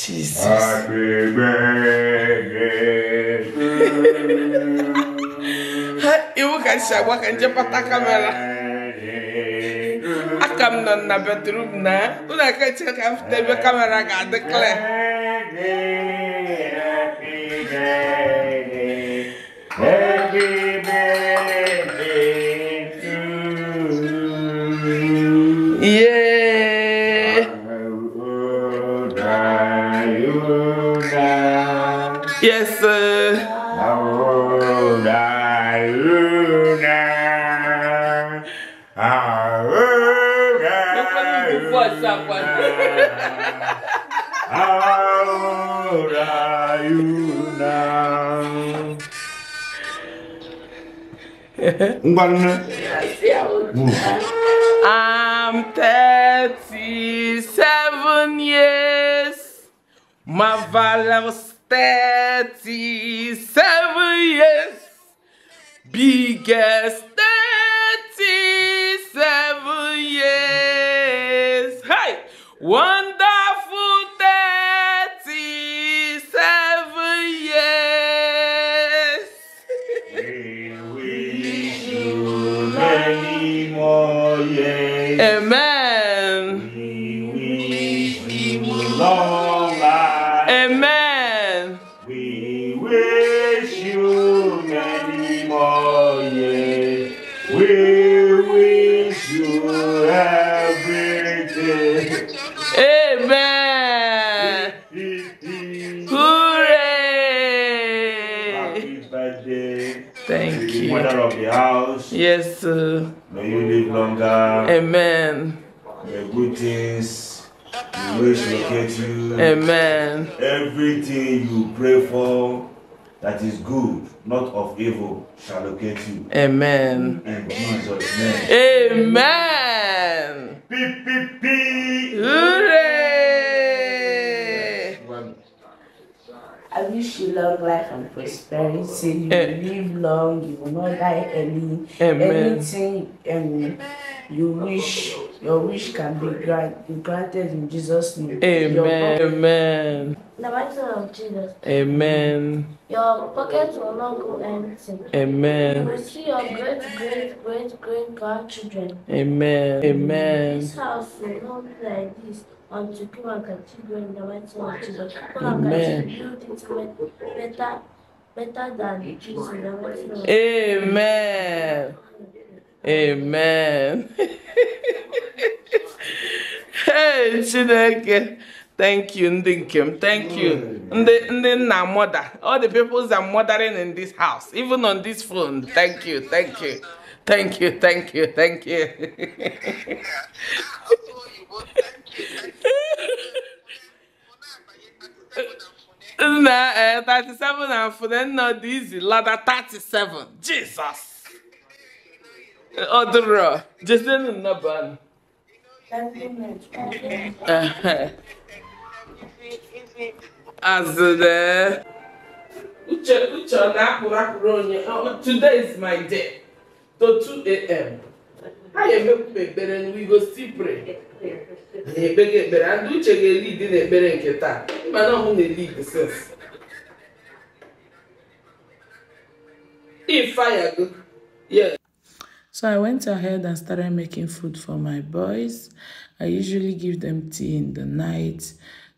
Jesus. Happy birthday to Ha, iwu ka si agwa ka njepụta kamera. Aka m nọ na bedroom na, ụlọ aka chere ka m fute ebe kamera ga-adị clear. Un balonè? Mou moun. I'm 37 years. Ma valavos 37 years. Big as 37 years. Hey! One! Thank you. Mother of the house. Yes. sir. May you live longer. Amen. May good things always locate you. Amen. Everything you pray for that is good, not of evil, shall locate you. Amen. In Jesus' name. Amen. you long life and prosperity. You will eh. live long. You will not die early. Amen. Anything um, you wish, your wish can be grant, granted in Jesus' name. Amen. Amen. The mighty of Jesus. Amen. Your pockets will not go empty. Amen. You will see your great, great, great, great grandchildren. Amen. Amen. This house will not be like this unto you and continue in the mighty name of Jesus. People are continued into better, better than Jesus in the mighty name of Jesus. Amen. Amen. hey, Chineke. Thank you, Ndinkim. Thank you. Ndinna mother. All the people that are mothering in this house, even on this phone. Thank you, thank you. Thank you, thank you, thank you. na eh, 37 and Funenna Dizi Lada 37. Jesus! Odoro, Jason Naban. Eh, eh. As the eh. Uche, Uche, Nakurakronia. Oh, today is my day. To 2 a.m. I am a baby and we go still pray na-ekpe gị ekpere ndị uche ga-elidi n'ekpere nke taa mba na ọhụ na-elidi sins Yeah. So I went ahead and started making food for my boys. I usually give them tea in the night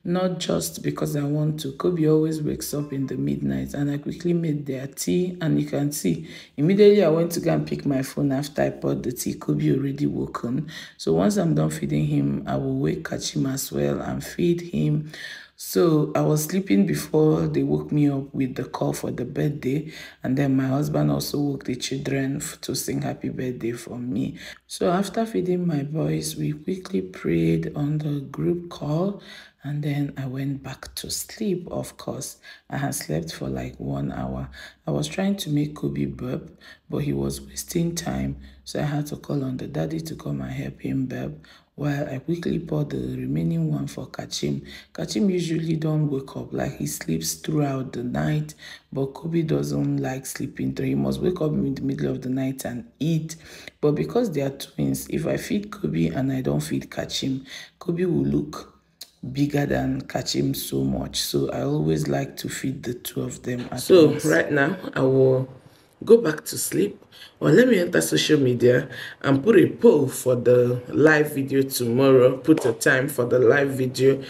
not just because I want to. Kobe always wakes up in the midnight and I quickly made their tea and you can see immediately I went to go and pick my phone after I poured the tea. Kobe already woken. So once I'm done feeding him, I will wake him as well and feed him. So I was sleeping before they woke me up with the call for the birthday. And then my husband also woke the children to sing happy birthday for me. So after feeding my boys, we quickly prayed on the group call and then I went back to sleep, of course. I had slept for like one hour. I was trying to make Kobe burp, but he was wasting time, so I had to call on the daddy to come and help him burp while I quickly poured the remaining one for Kachim. Kachim usually don't wake up, like he sleeps throughout the night, but Kobe doesn't like sleeping, so he must wake up in the middle of the night and eat. But because they are twins, if I feed Kobe and I don't feed Kachim, Kobe will look bigger than Kachim so much. So I always like to feed the two of them So once. right now I will go back to sleep or let me enter social media and put a poll for the live video tomorrow, put a time for the live video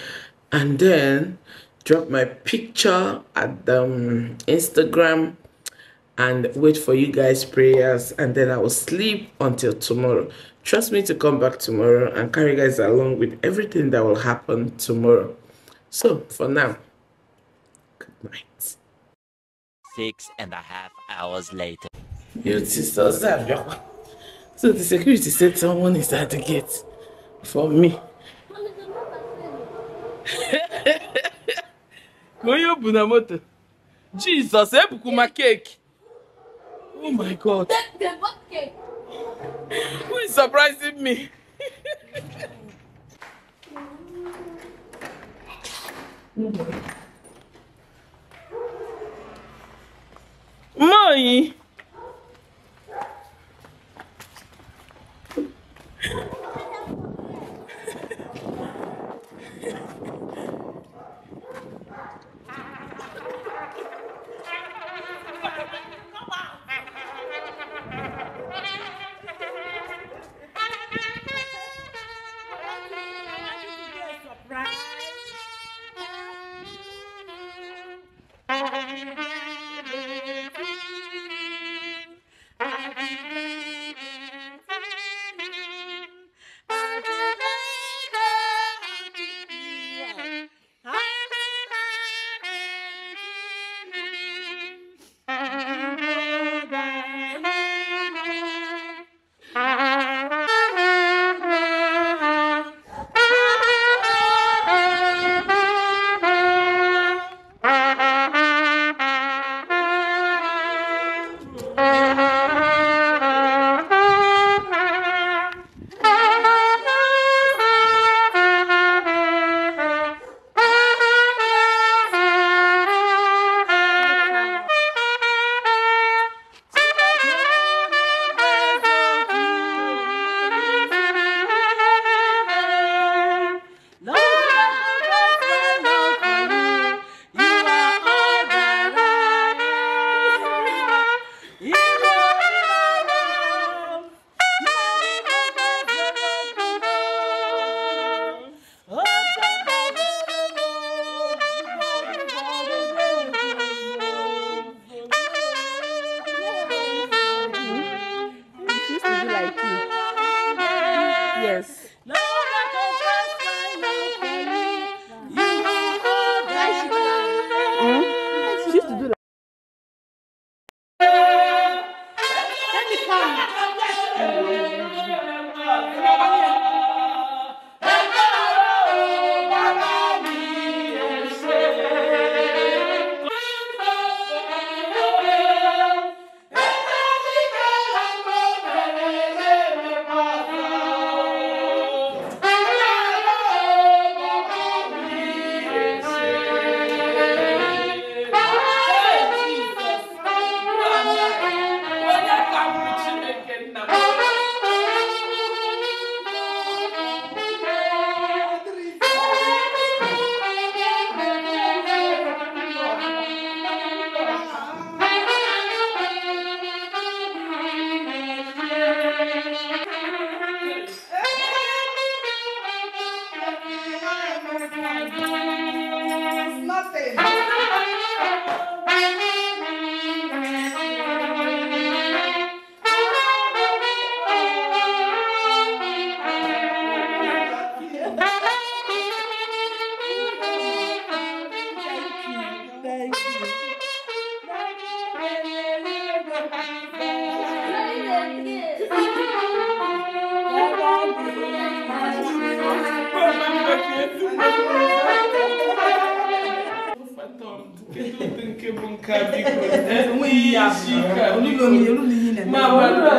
and then drop my picture at the um, Instagram and wait for you guys prayers and then I will sleep until tomorrow. Trust me to come back tomorrow and carry guys along with everything that will happen tomorrow. So, for now, good night. Six and a half hours later. Your sisters So the security said someone is at the gate for me. bu na moto? Jesus, ebuku cake. Oh my God. That's the cake. Who is surprising me? Mãe!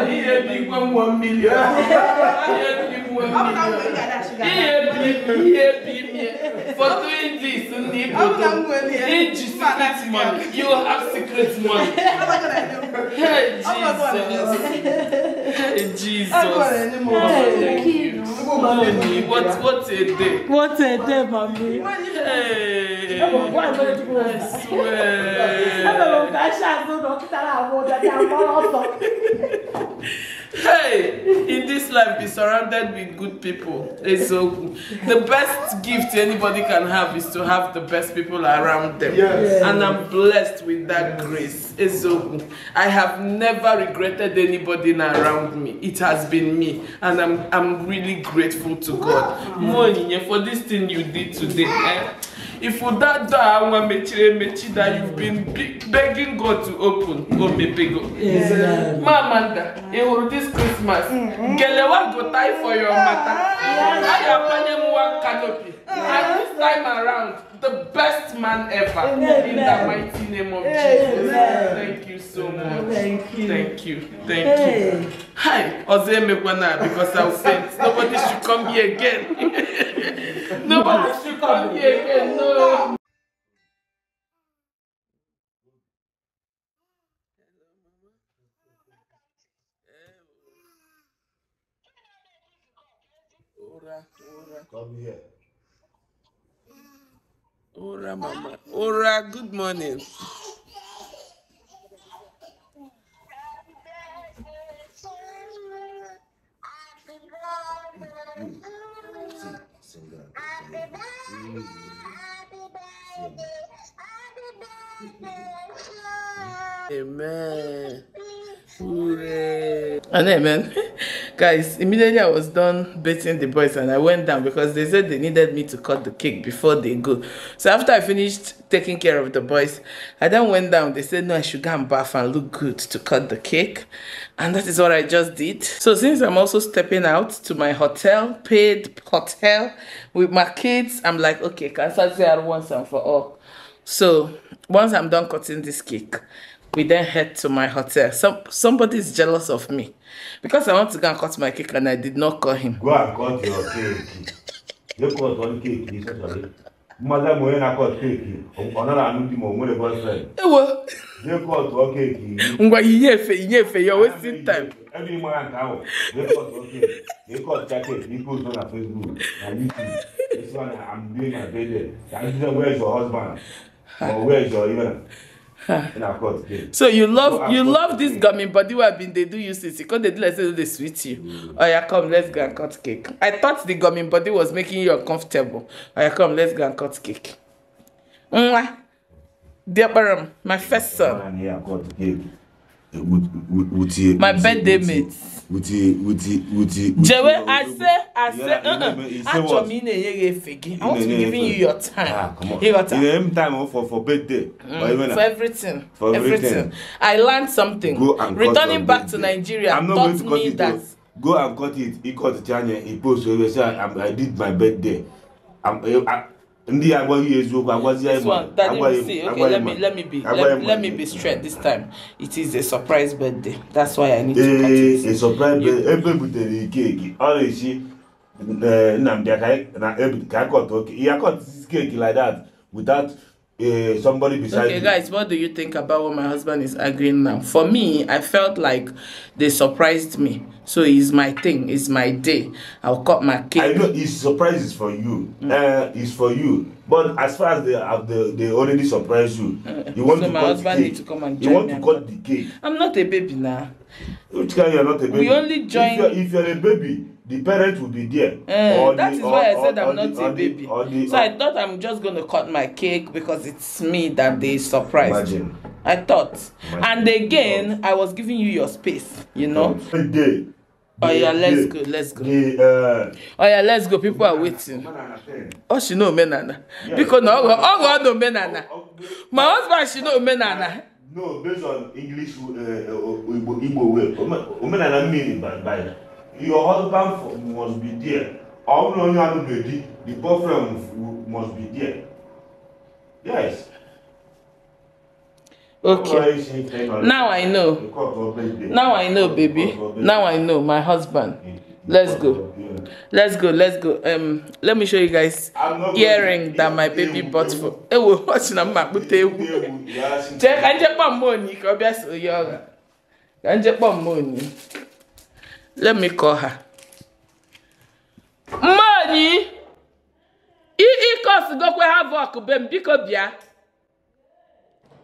ihe dị igwe mmụọ mmiri ihe bimie foto indis ndị iji secret money you have secret money hey jesus hey jesus What's mommy. a day. What a day, mommy. Hey. I swear. I'm going to go to a doctor hey, in this life, be surrounded with good people. It's so good. the best gift anybody can have is to have the best people around them. Yes. And I'm blessed with that yes. grace. It's so good. I have never regretted anybody around me. It has been me, and I'm I'm really grateful to God. Wow. Mm. For this thing you did today. Eh? If that door I one mechire mechi that you've been begging God to open, go mepego. Amanda, Mamanda, all this Christmas. Mm-hmm. Gelewa go tie for your matter. I am one canopy. At this time around, the best man ever. Amen. In the mighty name of Amen. Jesus. Thank you so much. Thank you. Thank you. Thank hey. you. Hi, Ozee Mekwana, because I was saying nobody should come here again. nobody should come here again. No. Come here. Ora, Mama. Ora, good morning. Amen. Hooray. And amen. guys immediately i was done beating the boys and i went down because they said they needed me to cut the cake before they go so after i finished taking care of the boys i then went down they said no i should go and bath and look good to cut the cake and that is what i just did so since i'm also stepping out to my hotel paid hotel with my kids i'm like okay can i say once and for all so once i'm done cutting this cake we then head to my hotel. Some somebody is jealous of me because I want to go and cut my cake and I did not call him. Go and cut your cake. you cut one cake, especially. Mother mo na cut cake. Another anudi mo mo the boyfriend. Ewo. Eh, you cut one cake. Ngwa iye fe iye fe you wasting time. Every man can go. You cut one cake. You cut that He goes post on Facebook and YouTube. This one I'm doing my bed. That is where is your husband? Or where is your even? so you love you love this gummy body Where i bin dey do you since because they do like say e no dey Oh yeah, come let's go and cut cake i thought the gummy body was making you uncomfortable Oh yeah, come let's go and cut cake dear diaparam my first son wutie. my birthday mate. wutie wutie wutie. jewe ase ase achọ m ị na-enye gị i want to be giving you your time. ah come on you time for for birthday. Mm, for everything for everything i learned something. Returning back cut your birthday returning back to nigeria taught me that. go and cut it he cut it janye he post He say i did my birthday. I'm, I, Ndi a gwa yi e zwo, ba gwa zi a yi man, a gwa yi man. Ok, let me be straight this time. It is a surprise birthday. That's why I need to eh, eh, cut it. A surprise birthday. Epe bute di ki e ki. A re yi si, nanm di a kwa toke. E a kwa ti ki e ki like that, without eh, somebody beside you. Ok guys, what do you think about what my husband is agreeing now? For me, I felt like they surprised me. So it's my thing. It's my day. I'll cut my cake. I know. It's surprises for you. Mm. Uh, it's for you. But as far as they have the, they already surprised you, you want so to my cut husband the cake. to come and join you want to cut the cake. I'm not a baby now. Which kind you're not a baby? We only join. If you're, if you're a baby, the parent will be there. Uh, that the, is or, why I said or, I'm or not the, a baby. the, the, so I thought I'm just going to cut my cake because it's me that they surprised. Imagine. I thought. Imagine. And again, I was giving you your space, you know. Every day. Oh yeah, let's go, let's go. Uh, oh yeah, let's go. People are waiting. Oh, she know menana. because no, oh, oh God, no menana. Oh, oh, My husband, she know menana. No, based on English, uh, uh Igbo, way. Omenana meaning by, by your husband must be there. All no, you have to be the boyfriend must be there. Yes. Okay. Now I know. Now I know, baby. Now I know, my husband. Let's go. Let's go. Let's go. Um, let me show you guys earring that my baby bought for. Eh, we're watching a map Check I check on money. Obvious, yoga. I check on money. Let me call her. Money. it e cause go have work, bem, because yeah.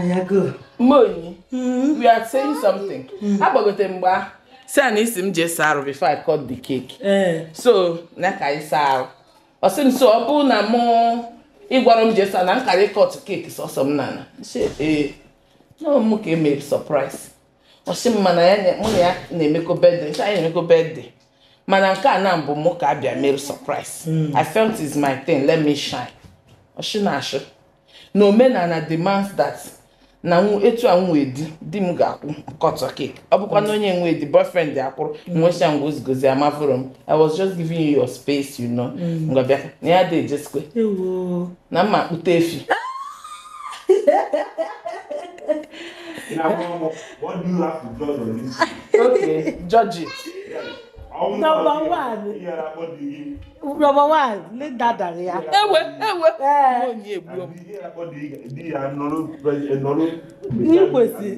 Mm-hmm. we are agbagote mm-hmm. mgbe a si na isi m jee saa arụ before I cut the cake eh. so na ka anyị saa arụ m so ọ bụ na mụ ịgwara m jee saa na nkara ịkọt cake sọsọ m nana eh, ee ka emere surprise ọ sị m mana mụ ya na-emekọ bedde na-emekọ mana nke a na mbụ mụ ka abịa mere surprise mm. I felt is my thing let me shine na na omenala demands that na etu a nwee di di m ga-akwụ kọtọ cake ọ bụkwa na onye nwee di boyfriend akwụrụ mm. nwecha ngozgozi amafụrụ m i was just giving you your space you know mm. ngwa bịa na ya dị ejesikwe na mma akpụta efi okay judge it number one number one lè dàdàrí ya. ewe ewe mo ní èbú ọ. ní kwesì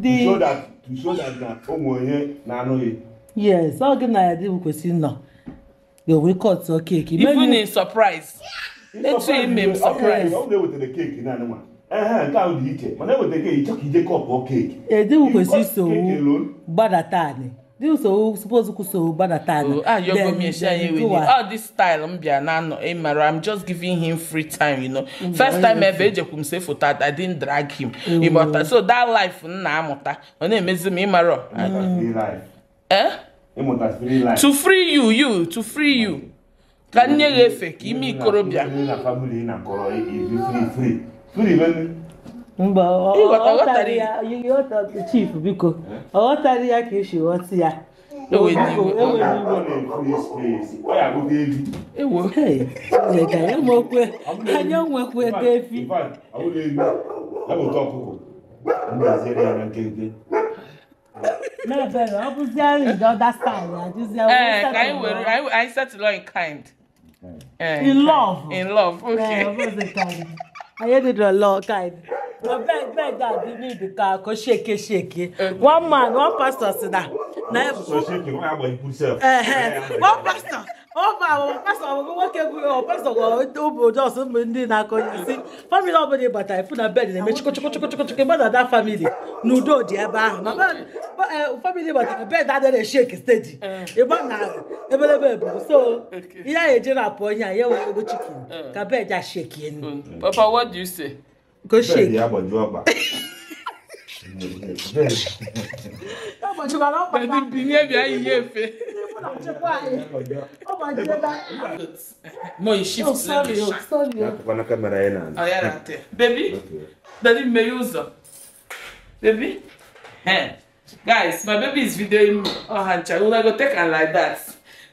di. to show that to show that na ụmụ onye na-anụghị. yes ọ gị na ya dị kwesị nọ ga-enwe kọtụ keeki. even in surprise etu ime m surprise. ọ bụla ewetere keeki naanị nwa. ehe nke ahụ mana e e, all oh, ah, oh, this style m bịa na anọ eh, mara m just giving him free time you know mm, first time ever ejekwu m say foto I drag him oh. so that life m na-amụta ọ na-emezi m ịmara eh? to free you you to free you ka nne efe ka ime ikorobịa mba ọ chief biko ọ ghọtara ya ka esi ghọta ya enwekwe anyị onwekwe efi ọ in love okay. Ayédèdọ̀lọ́ guide. Abeg beg dat give me the car ko shake shake. One man, one pastor sit down. Na e. So shake you, why about you put One pastor ọ pastọ nwoke bụghị pastọ obi ụjọ ọsọ mgbe ndị na-akọ isi famili ọbụla ị batara ịfụ na bed na-eme chịkọchịkọchịkọchịkọ mmadụ ada famili na udo dị ebe ahụ na famili batara bed adịghị shek steji ịgba na ebelebe bụ so ihe a eji na-apụ onye a ya wee ego chikin ka bed a shekie nu papa what do you say go shake agbajikwala ọkpa binye bịa ihe efe Mo yi shift oh, sorry, Baby. Okay. Daddy Baby. Hey. Guys, my baby is videoing me. Oh, Hancha, una go take and like that.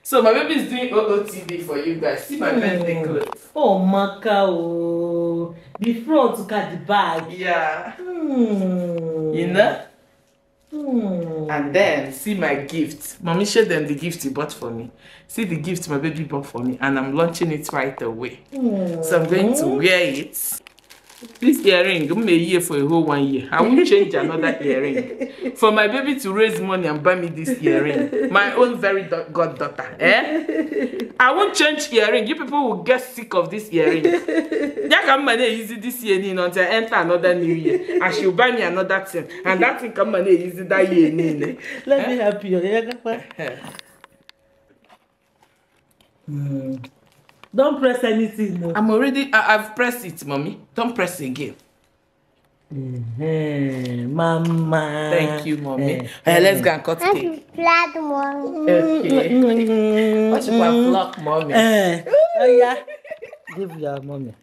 So my baby is doing OOTD for you guys. See my mm. clothes. Oh, Macau. The front to cut the bag. Yeah. Mm. You know? Hmm. And then see my gift. Mommy showed them the gift he bought for me. See the gift my baby bought for me, and I'm launching it right away. Hmm. So I'm going to wear it this earring I'm a year for a whole one year. I won't change another earring. For my baby to raise money and buy me this earring. My own very god daughter. Eh? I won't change earring. You people will get sick of this earring. come money easy this year you until I enter another new year. And she'll buy me another thing. And that thing come money easy that year. Eh? Let eh? me help you. Mm. Don't press anything. No. I'm already, I, I've pressed it, mommy. Don't press again. Mm-hmm. Mama. Thank you, mommy. Mm-hmm. Eh, hey, let's go eh. and cut I'm cake. Flat, mommy. Okay. Mm-hmm. What should I block, mommy? Uh, oh, yeah. Give your mommy.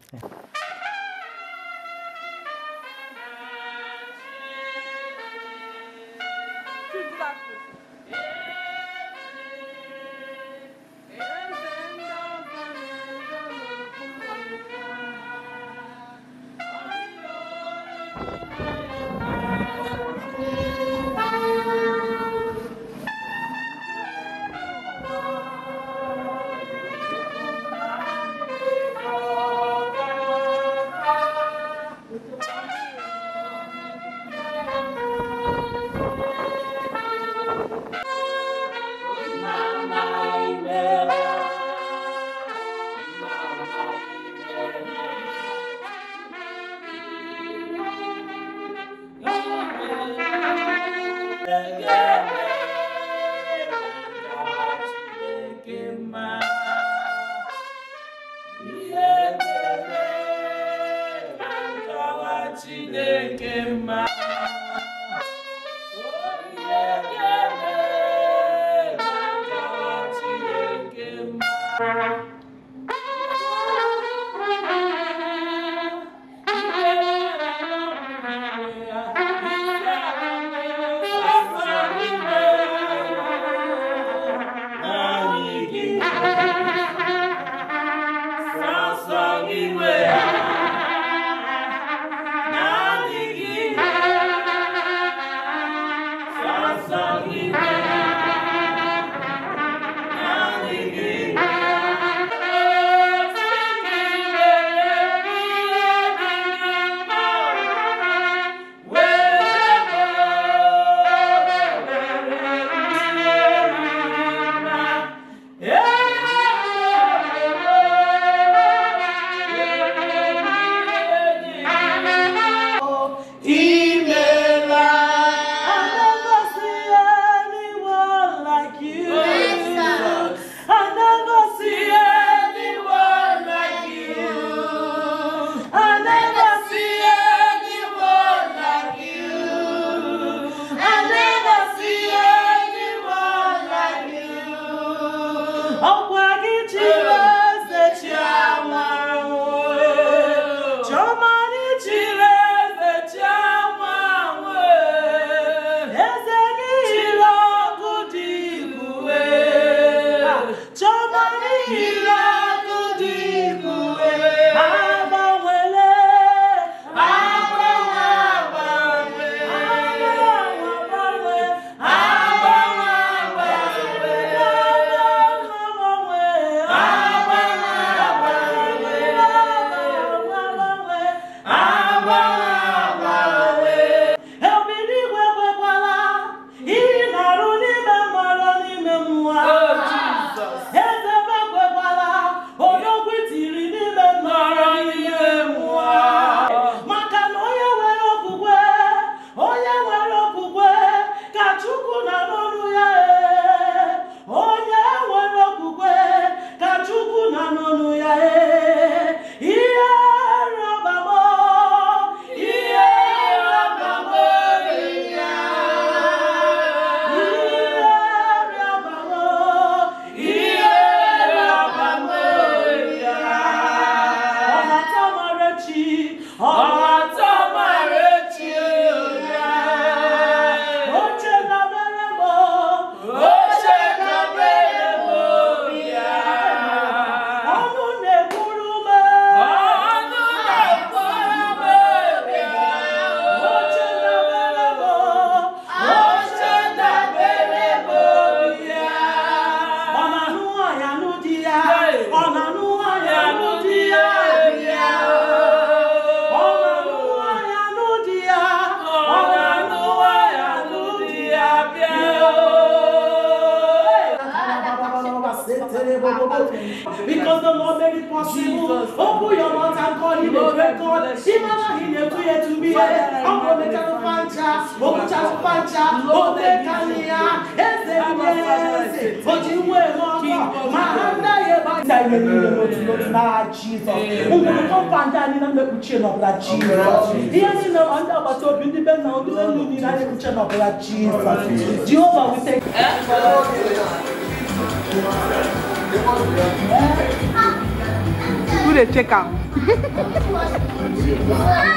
Who they check out?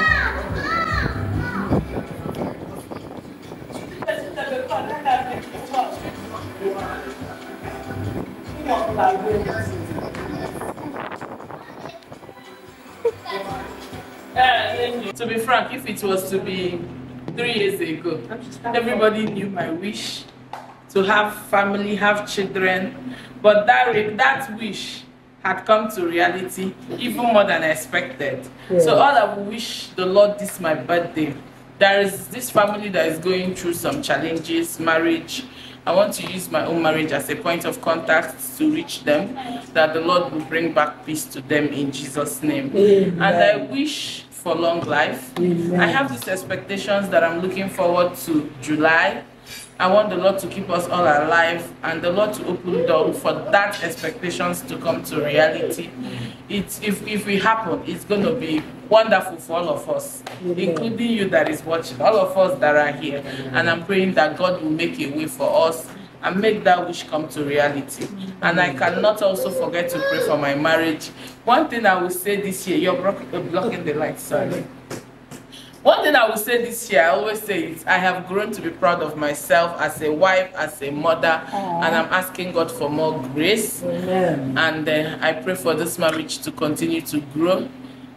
to be frank, if it was to be three years ago, everybody knew my wish to have family, have children, but that, that wish had come to reality even more than I expected. So all I wish the Lord this my birthday. There is this family that is going through some challenges, marriage, I want to use my own marriage as a point of contact to reach them, that the Lord will bring back peace to them in Jesus' name. Amen. And I wish for long life. Amen. I have these expectations that I'm looking forward to July I want the Lord to keep us all alive and the Lord to open door for that expectations to come to reality. It's, if, if it happen, it's going to be wonderful for all of us, including you that is watching, all of us that are here. And I'm praying that God will make a way for us and make that wish come to reality. And I cannot also forget to pray for my marriage. One thing I will say this year, you're blocking the light, sorry. One thing I will say this year, I always say it, I have grown to be proud of myself as a wife, as a mother, Aww. and I'm asking God for more grace. Amen. And uh, I pray for this marriage to continue to grow.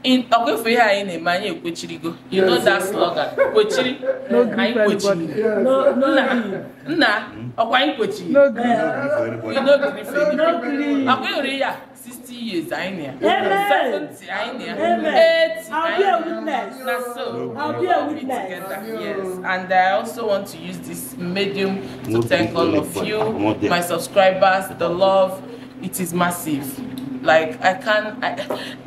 In Okwefeyi anyị na-eme anyị ekwechirigo. You know that slogan, kwechiri, anyị kwechiri. Nna, nna, ọkwa anyị kwechiri. No grief. No grief. Ọkwa ori 60 years, I near. 70, I near. 80, I'll be a witness. I'll be a witness. Yes. And I also want to use this medium to thank all of you, my subscribers, the love. It is massive. Like I can, I,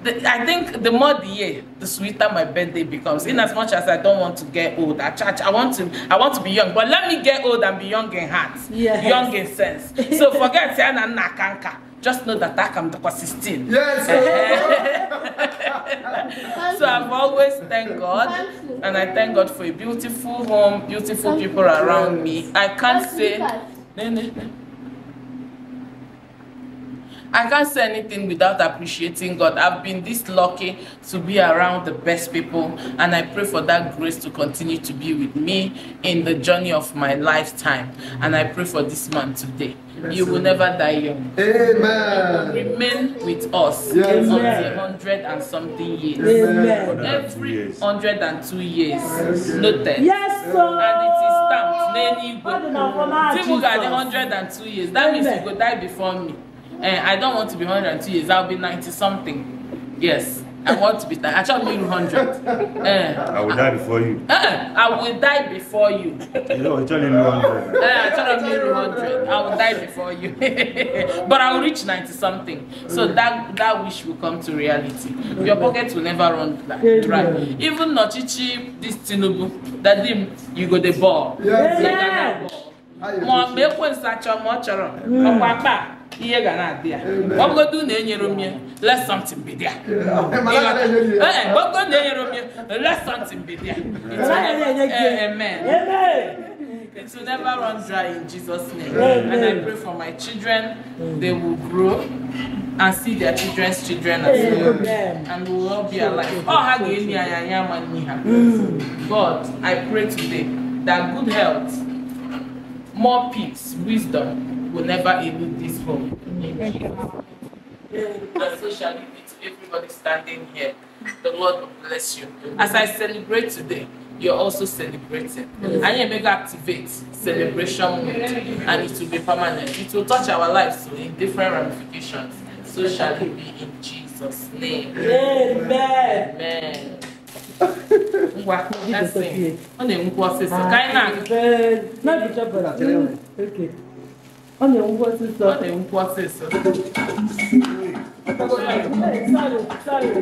the, I think the more the year, the sweeter my birthday becomes. In as much as I don't want to get old, I charge, I want to, I want to be young. But let me get old and be young in heart, yes. young in sense. So forget saying I'm just know that I am talk 16. Yes. so I've always thanked God, and I thank God for a beautiful home, beautiful people around me. I can't say. I can't say anything without appreciating God. I've been this lucky to be around the best people, and I pray for that grace to continue to be with me in the journey of my lifetime. And I pray for this man today. Yes, you will amen. never die young. Amen. Remain with us yes, hundred and something years. Amen. Every hundred and two years. Yes. Noted. Yes, sir. And it is stamped. Nenigwe. Timu got hundred and two years. That means you go die before me. and eh, I don't want to be 102 years. I'll be 90 something. Yes. I want to be that. I shall be 100. Uh, eh. I will I, die before you. Uh, I will die before you. You know, I shall be 100. Uh, I shall be 100. I will die before you. but I will reach 90 something. So that that wish will come to reality. Your pocket will never run dry. Right. Even Nochichi, this Tinubu, that him, you go the ball. Yes. Yeah. Mọ̀ mẹ́kùn ìsàchọ̀ mọ̀ chọ̀rọ̀ ọ̀pọ̀ apá ihe ga na-adị ya ọbụgodu na enyere m let something be there ee ọbụgodu na enyere m let something be there amen It will never run dry in Jesus' name. Amen. And I pray for my children, they will grow and see their children's children as well. Amen. And we will all be alive. Oh, God, I pray today that good health, more peace, wisdom, will never elude this home. and so shall it be to everybody standing here. The Lord bless you. As I celebrate today, you're also celebrating. I hmm And you activate celebration mood, and it will be permanent. It will touch our lives so in different ramifications. So shall it be in Jesus' name. Amen. Amen. Olha, um vou acessar. Olha, um vou acessar. Saiu, saiu.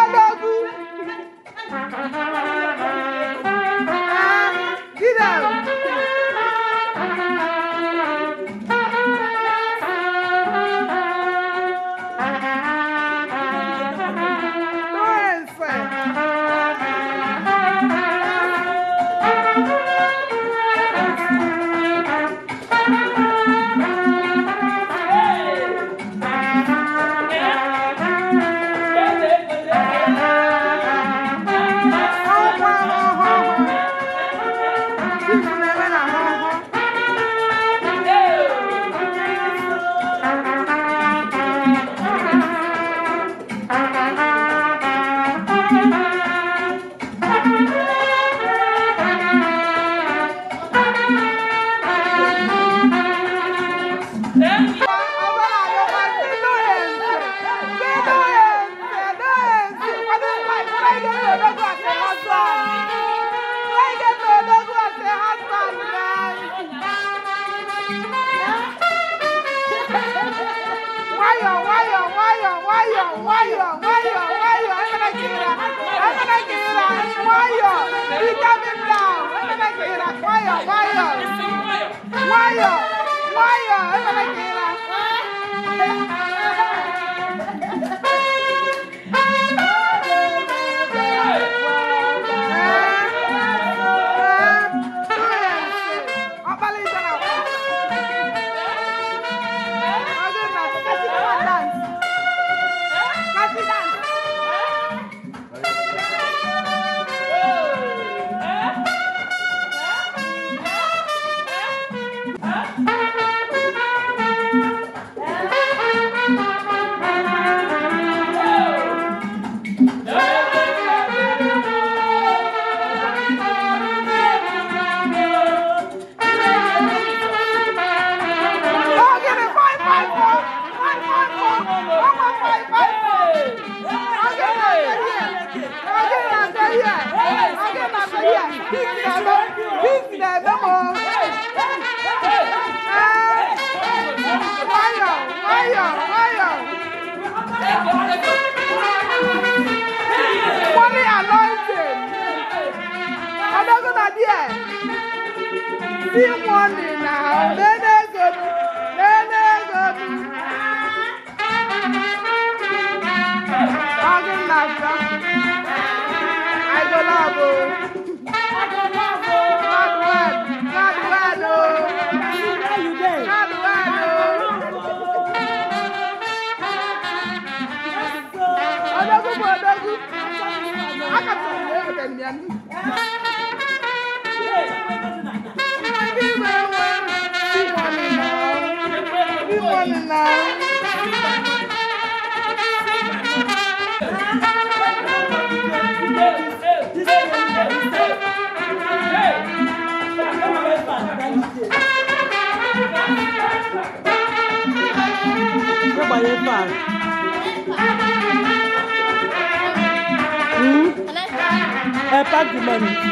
humanity.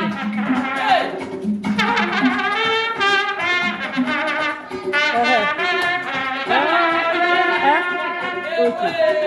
Okay.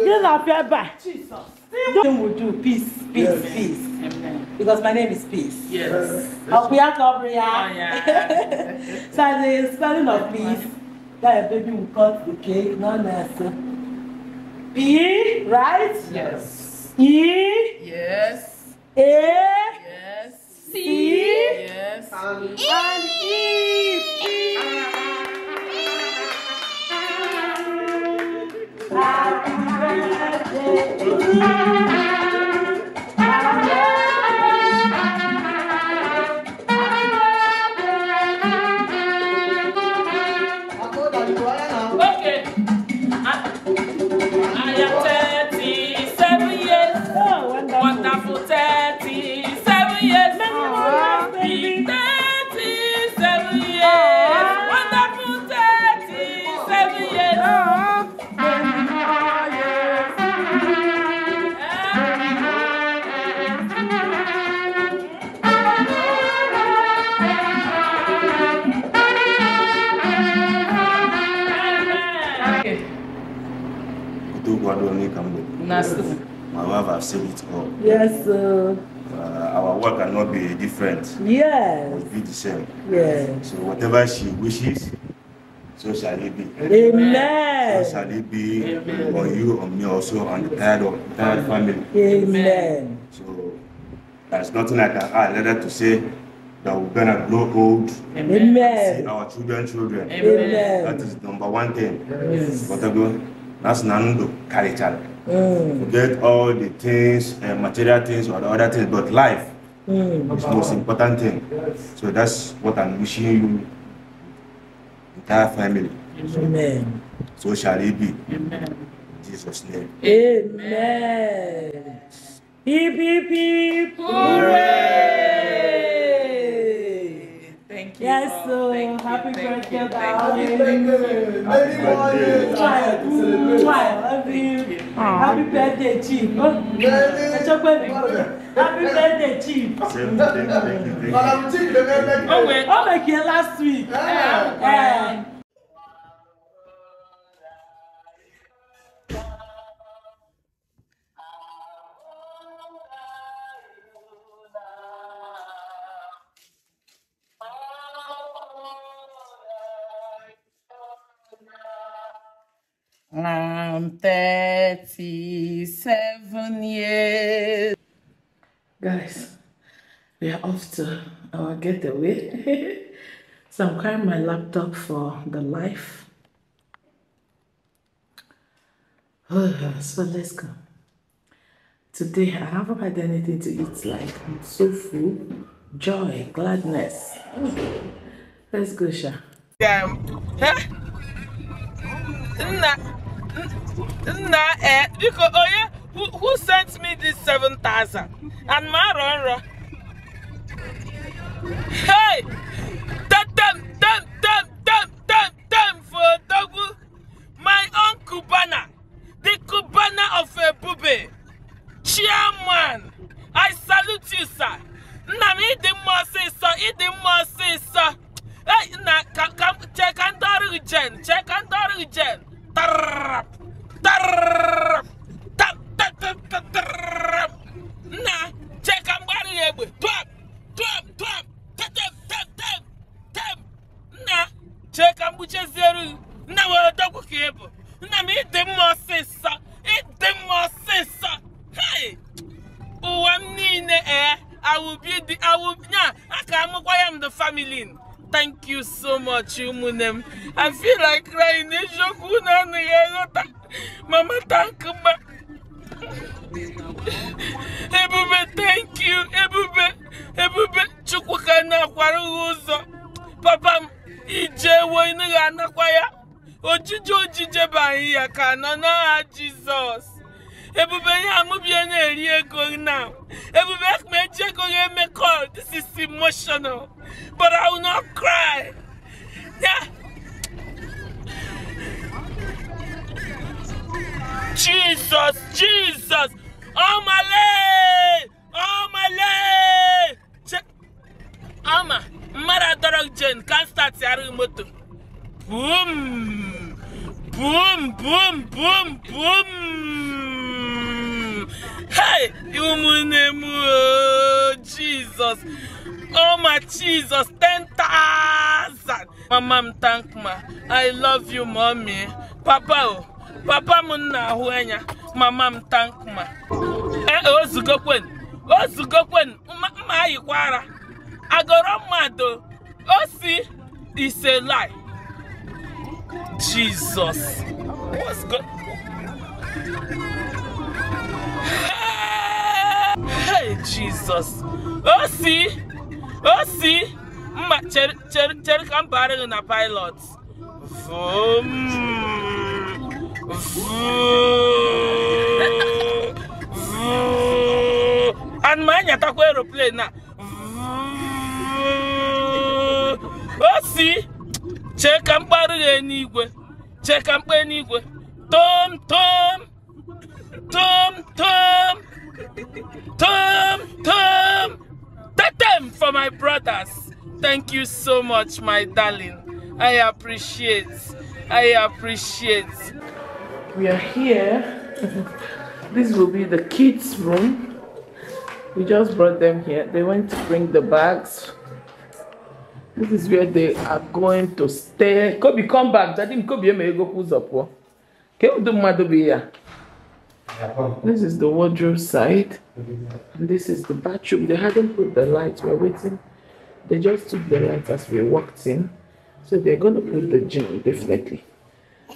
Yes, I fear by. Jesus. Nothing will do. Peace, peace, yes. peace. Amen. Because my name is Peace. Yes. Obia Cobria. Oh, so the spelling of peace, that baby will cut the cake, no nurse. P, right? Yes. E? Yes. A? Yes. C? Yes. And E. And e. e. Happy Thank you. My wife has seen it all. Yes, sir. Uh, our work cannot be different. Yes. It will be the same. Yes. So whatever she wishes, so shall it be. Amen. So shall it be Amen. on you, on me also, on the entire, entire family. Amen. So there's nothing I can add other to say that we're gonna grow old. Amen. See our children, children. Amen. That is number one thing. Yes. But that's Nanundo Karichal. Mm. Forget all the things, uh, material things or the other things, but life mm. is the most important thing. So that's what I'm wishing you, entire family. Amen. So, so shall it be. Amen. In Jesus' name. Amen. Hip, hip, hip. Hooray! Thank you. Yes, so happy birthday, Happy birthday. Happy birthday. I love Happy Happy birthday. Ah. happy birthday chief ẹ jọ pé mi kò happy birthday chief. ọ̀wẹ̀ ọ̀wẹ̀ kìí last week. Yeah. Yeah. Yeah. I'm 37 years. Guys, we are off to our getaway. so I'm carrying my laptop for the life. so let's go. Today I haven't had anything to eat like I'm so full. Joy, gladness. Let's go, Sha. Damn. Huh? nna ee eh, biko onye who sent me this 7000 and ma arọ nrọ hey tem tem tem tem tem tem for odogwu my uncle Bana, the Kubana of a ebube chairman i salute you sir nna m ịdị mma ọsịsọ ịdị mma ọsịsọ na nna ka ndị ọrụ jen chee ka ndị ọrụ jen tarrap tarrap tarrap na check am bari egbe twap twap twap tetep tep tep tep na check am buchezieri na were dogwu ka ebu nna m ịdị mma ọsịsa ịdị mma ọsịsa hei ụwa m niile ee awubi dị awubi nya aka amụkwa ya m the family thank you so much, Umunem. I feel like crying. Mama, thank you. Ebube, thank you. Ebube, Ebube, Chukwuka na-akwara ụzọ. Papa Ije. ijewo ị naghị anakwa ya. Ojije ojije bụ anyị ya ka nọ n'aha ebube ya amụbie na-eri ego now ebube ekpeji ego ya emekọ this is emotional but I will not cry Jesus Jesus ọmale ọmale ọma mmadụ adọrọ jen ka start arụghị moto boom boom boom boom boom Hey, you, my name, oh Jesus, oh my Jesus 10,000 mama m thank ma I love you mommy papa oh, papa m na-ahụ anya mama m thank ma ee eh, ozugokwen oh, ozugokwen oh, mma ayikwara Oh, see, it's a lie Jesus what's good? Jesus. Oh, see? Oh, see? Mma, chere, chere, chere ka m baara gị pilot. Vroom. Vroom. Vroom. And ma nyatakwa aeroplane na. O si. Chee ka m kparụ gị n'igwe. Chee ka m Tom, tom. Tom, tom. Tom, Tom, that them for my brothers. Thank you so much, my darling. I appreciate. I appreciate. We are here. this will be the kids' room. We just brought them here. They went to bring the bags. This is where they are going to stay. Kobe, come back. Daddy, Kobe, may go who's up. Can you do madu be here? This is the wardrobe side. This is the bathroom. They hadn't put the lights. We're waiting. They just took the lights as we walked in. So they're going to put the gym, definitely.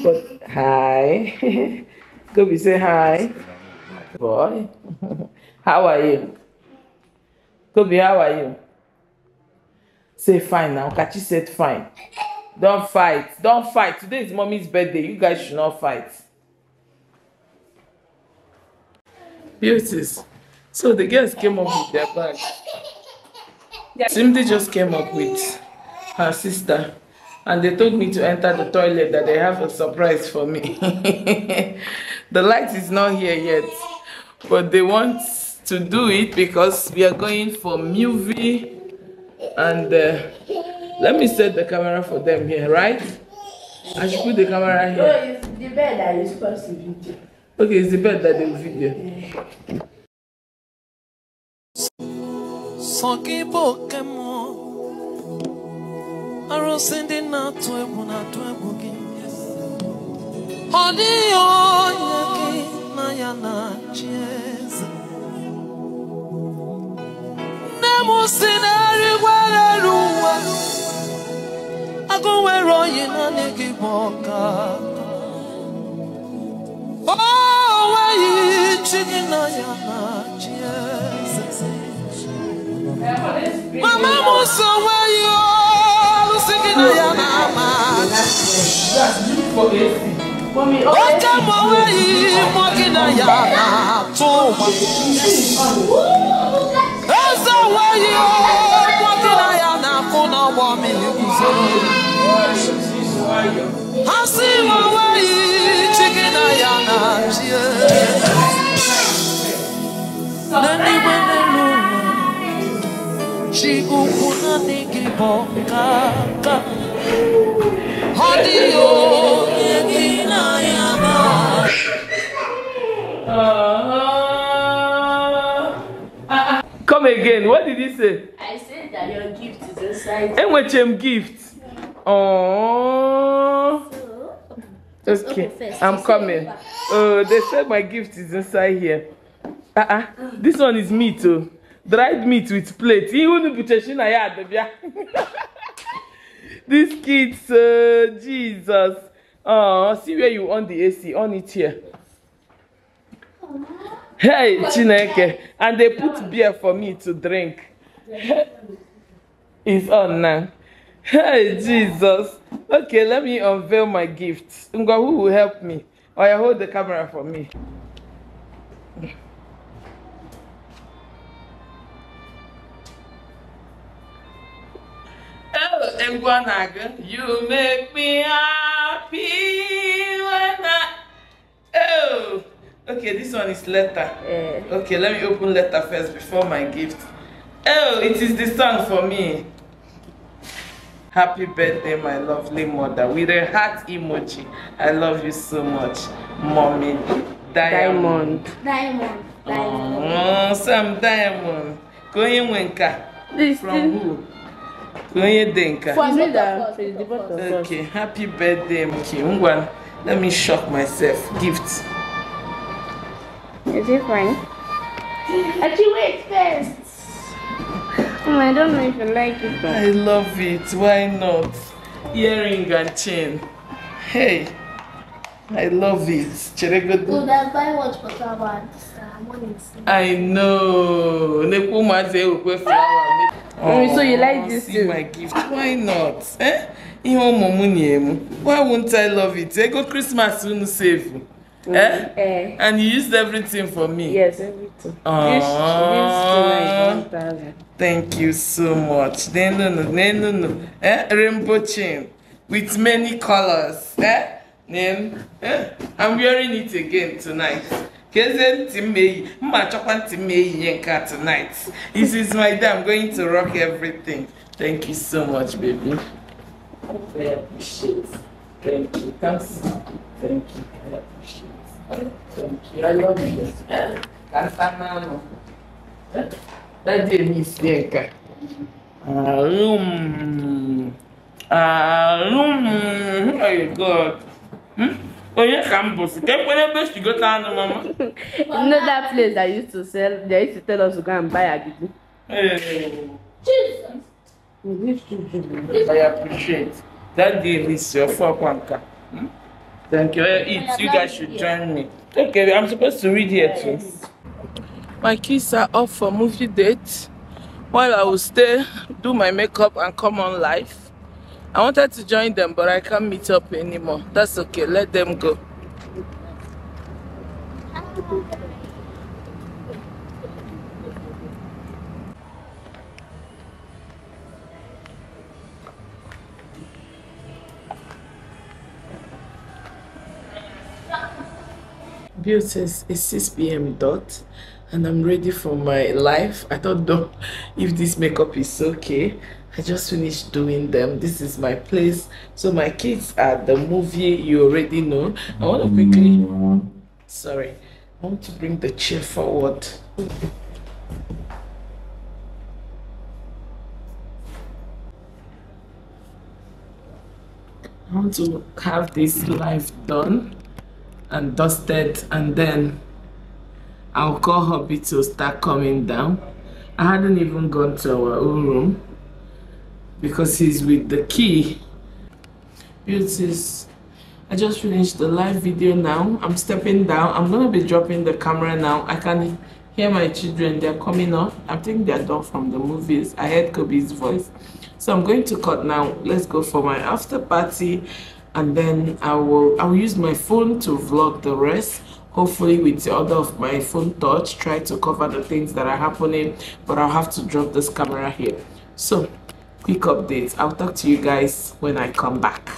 But hi. Gobi, say hi. Boy. how are you? Kobe? how are you? Say fine now. Kachi said fine. Don't fight. Don't fight. Today is mommy's birthday. You guys should not fight. beauties. So the girls came up with their bag. Simdi just came up with her sister and they told me to enter the toilet that they have a surprise for me. the light is not here yet, but they want to do it because we are going for movie and uh, let me set the camera for them here, right? I should put the camera here. No, it's the bed that is supposed to be. Okay, it's the bed that they feed bụ oke mmụọ, arụsị ndị na-atụ egwu na-atụ egwu gị. Ọ dịghị onye gị na ya na Nne m si na-erigwere elu oyi naanị gị ọka. Mama Musa, where you all singing a yama? That's you for it. Mommy, oh, come away, walking a yama. Too much. That's the way you all walking a yama. Kuna wami, you can say. I see my way. Come again, what did he say? I said that your gift is inside. And what gift? Oh. It's okay, first. I'm coming. Oh, they said my gift is inside here. Uh -uh. This one is meat, oh. Dried meat with plate. These kids, uh, Jesus. Oh, see where you on the AC. On it here. Hey, Chineke. And they put beer for me to drink. it's on now. Hey, Jesus. Okay, let me unveil my gifts. Ngwa, who will help me? Oh, yeah, hold the camera for me. Oh, Ngwanaga, you make me happy when I... Oh, okay, this one is letter. Mm. Okay, let me open letter first before my gift. Oh, it is the song for me. Happy birthday, my lovely mother, with a heart emoji. I love you so much, mommy. Diamond. Diamond. Diamond. Oh, mm, some diamond. Konye Wenka. This From thing. who? Konye Denka. From me, that. Okay, happy birthday, okay. Ngwan, let me shock myself. Gift. Is it fine? Actually, wait first. I don't know if you like it. But... I love it. Why not? Earring and chain. Hey, I love it. Cheregodo. Would I buy watch for flower? I know. Nepo maze ukwe flower. so you oh, like this see too? my gift. Why not? Eh? Ihe ọmụmụ na-emu. Why won't I love it? Ego Christmas soon. save. Mm. Eh? eh? And you used everything for me? Yes, everything. Aww. Thank you so much. Nenunu, nenunu. Eh? Rainbow chain with many colors. Eh? Then, eh? I'm wearing it again tonight. Keze Timeyi, Mma Chokwan Timeyi Yenka tonight. This is my day. I'm going to rock everything. Thank you so much, baby. I appreciate. Thank you. Thanks. Thank you. I appreciate ìrọ̀lẹ́ ọ̀gbìn kásá náà nù dájú èmi oh god onye ka m bụsị ka ekpere ebe si gote anụ mama you know that place that used to sell they used to tell us to go and buy agidi Jesus we need I appreciate that day is your fuck one car hmm? Thank you. Eat. You guys should join me. Okay, I'm supposed to read here too. My kids are off for movie date while I will stay, do my makeup and come on live. I wanted to join them, but I can't meet up anymore. That's okay. Let them go. Bill says it's 6 p.m. dot and I'm ready for my life. I don't know if this makeup is okay. I just finished doing them. This is my place. So my kids are the movie you already know. I want to quickly sorry. I want to bring the chair forward. I want to have this life done and dusted and then alcohol beetles start coming down. I hadn't even gone to our own room because he's with the key. Beauties, I just finished the live video now. I'm stepping down. I'm going to be dropping the camera now. I can hear my children. They're coming up. I think they're done from the movies. I heard Kobe's voice. So I'm going to cut now. Let's go for my after party and then I will I will use my phone to vlog the rest hopefully with the other of my phone touch try to cover the things that are happening but I'll have to drop this camera here so quick updates I'll talk to you guys when I come back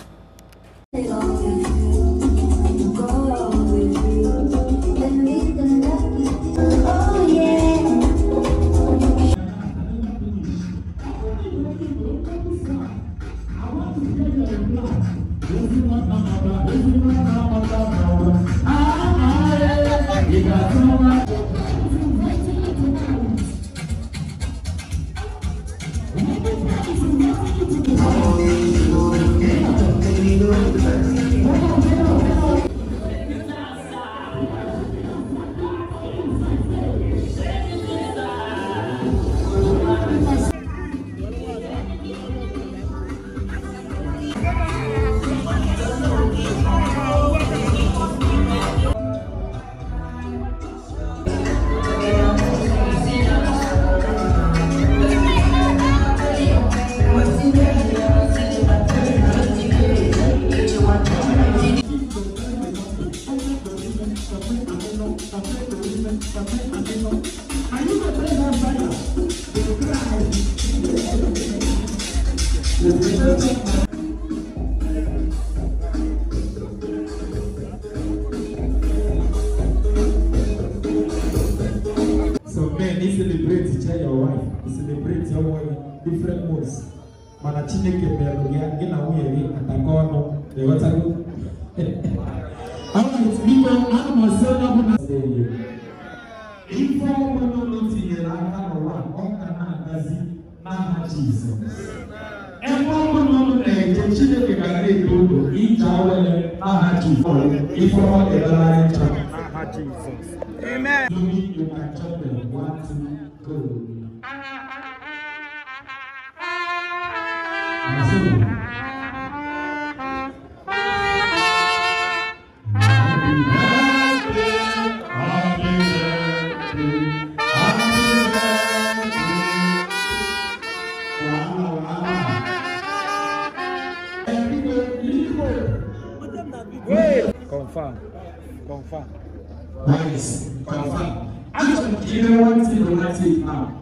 confirm, confirm. Nice, confirm. I just want to give you one thing now.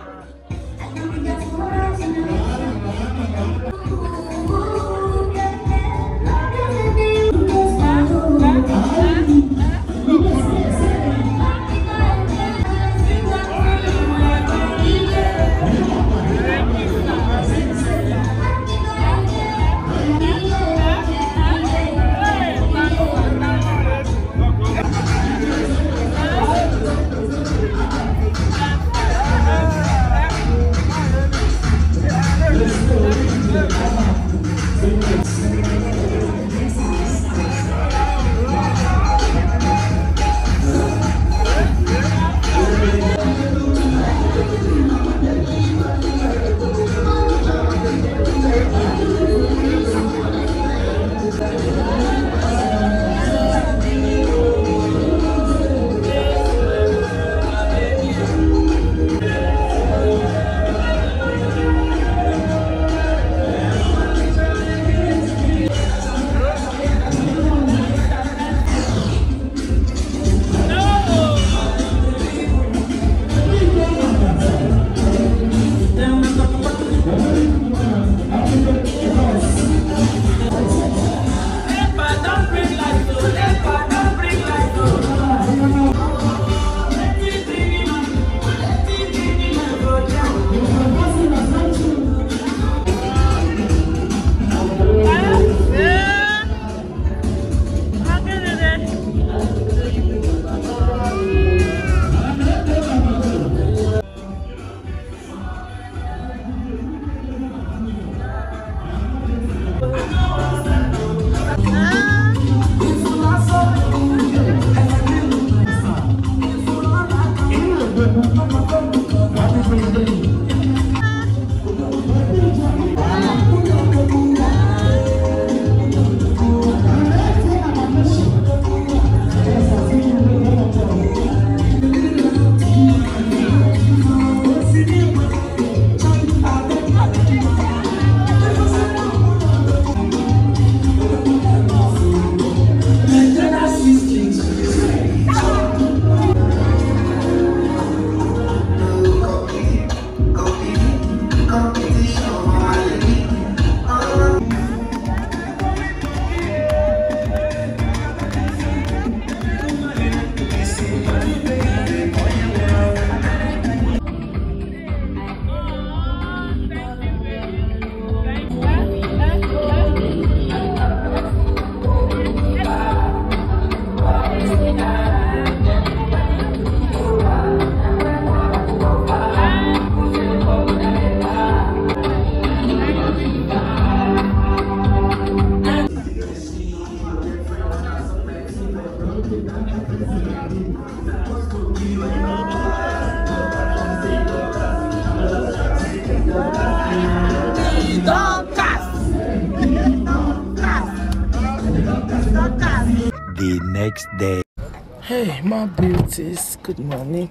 Good morning.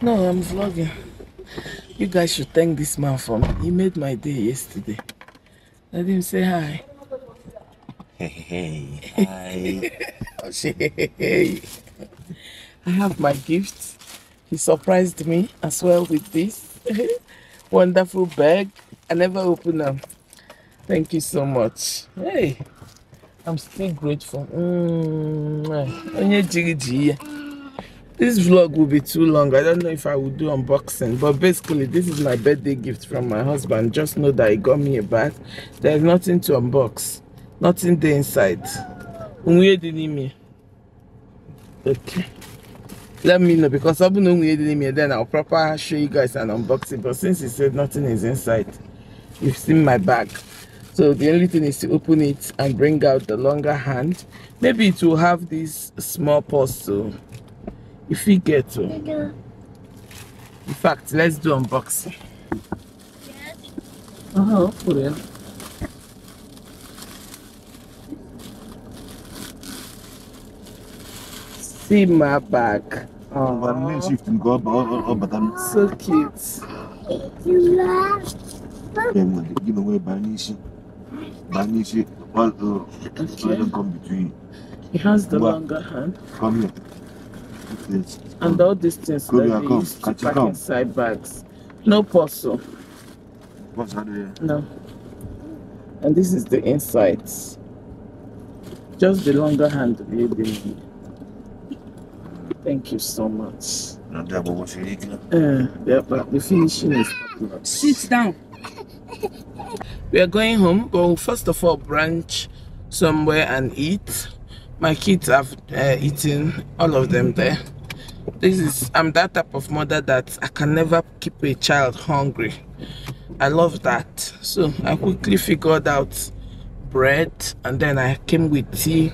No, I'm vlogging. You guys should thank this man for me. He made my day yesterday. Let him say hi. Hey, hey, hi. I have my gift. He surprised me as well with this wonderful bag. I never opened them. Thank you so much. Hey, I'm still grateful. Mm -hmm this vlog will be too long i don't know if i will do unboxing but basically this is my birthday gift from my husband just know that he got me a bag there's nothing to unbox nothing there inside okay let me know because I've been then I'll proper show you guys an unboxing but since he said nothing is inside you've seen my bag so the only thing is to open it and bring out the longer hand maybe it will have this small purse too if we get to. In fact, let's do unboxing. Yes. huh. open it. See my bag. Oh, so cute. You love. You give where Banishi? Banishi, all the children come between. He has the longer hand. Come here. Yes. And all these things Go that we used to pack come. inside bags. No parcel. What's that No. And this is the inside. Just the longer hand of baby. Thank you so much. Uh, yeah, but the finishing is Sit down. We are going home, but we'll first of all brunch somewhere and eat my kids have uh, eaten all of them there this is i'm that type of mother that i can never keep a child hungry i love that so i quickly figured out bread and then i came with tea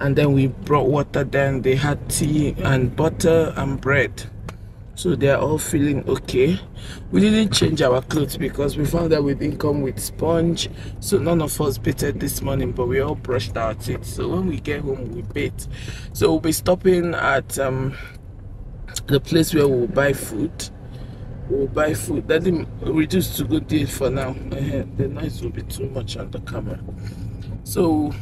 and then we brought water then they had tea and butter and bread so they're all feeling okay we didn't change our clothes because we found that we didn't come with sponge so none of us bathed this morning but we all brushed our teeth so when we get home we bathe so we'll be stopping at um, the place where we'll buy food we'll buy food that didn't reduce to good deal for now the noise will be too much on the camera so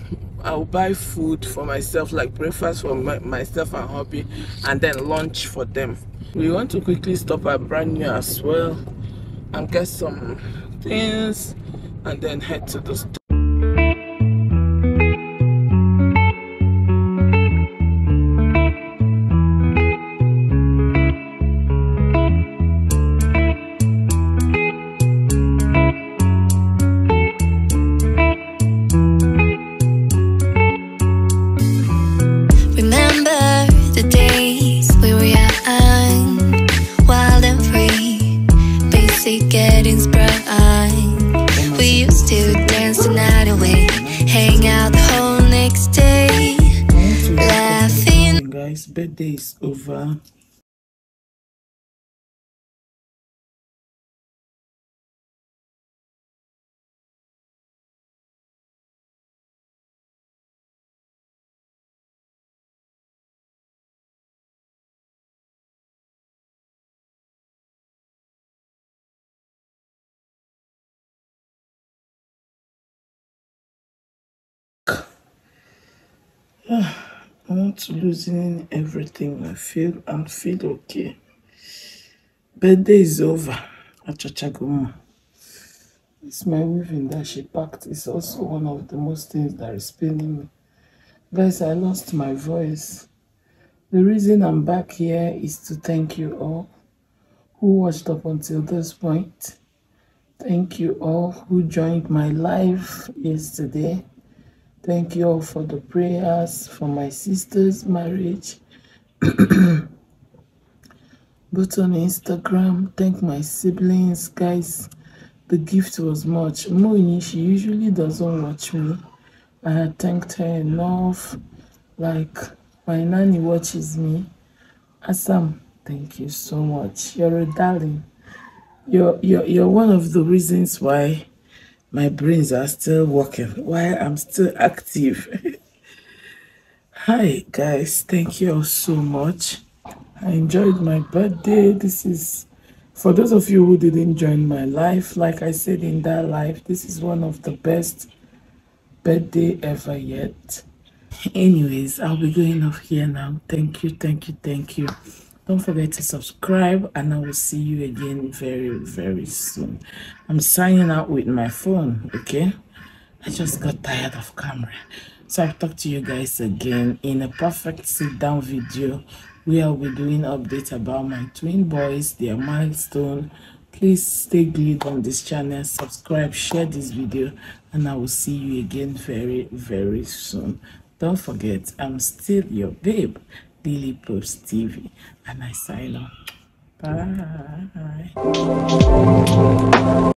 I'll buy food for myself, like breakfast for my, myself and hubby, and then lunch for them. We want to quickly stop at brand new as well and get some things and then head to the store. I want to losing everything. I feel I feel okay. Birthday is over. Achachagoma. It's my weaving that she packed. It's also one of the most things that is paining me. Guys, I lost my voice. The reason I'm back here is to thank you all who watched up until this point. Thank you all who joined my live yesterday. Thank you all for the prayers for my sister's marriage. But on Instagram. Thank my siblings, guys. The gift was much. Moini, she usually doesn't watch me. I had thanked her enough. Like, my nanny watches me. Assam, thank you so much. You're a darling. You're, you're, you're one of the reasons why my brains are still working while I'm still active. Hi, guys. Thank you all so much. I enjoyed my birthday. This is, for those of you who didn't join my life, like I said in that life, this is one of the best birthday ever yet. Anyways, I'll be going off here now. Thank you, thank you, thank you. Don't forget to subscribe, and I will see you again very, very soon. I'm signing out with my phone, okay? I just got tired of camera. So I'll talk to you guys again in a perfect sit-down video where I'll be doing updates about my twin boys, their milestone. Please stay glued on this channel, subscribe, share this video, and I will see you again very, very soon. Don't forget, I'm still your babe, Lily Post TV and I say, Bye.